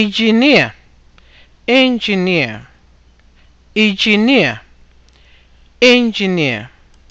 engineer engineer engineer engineer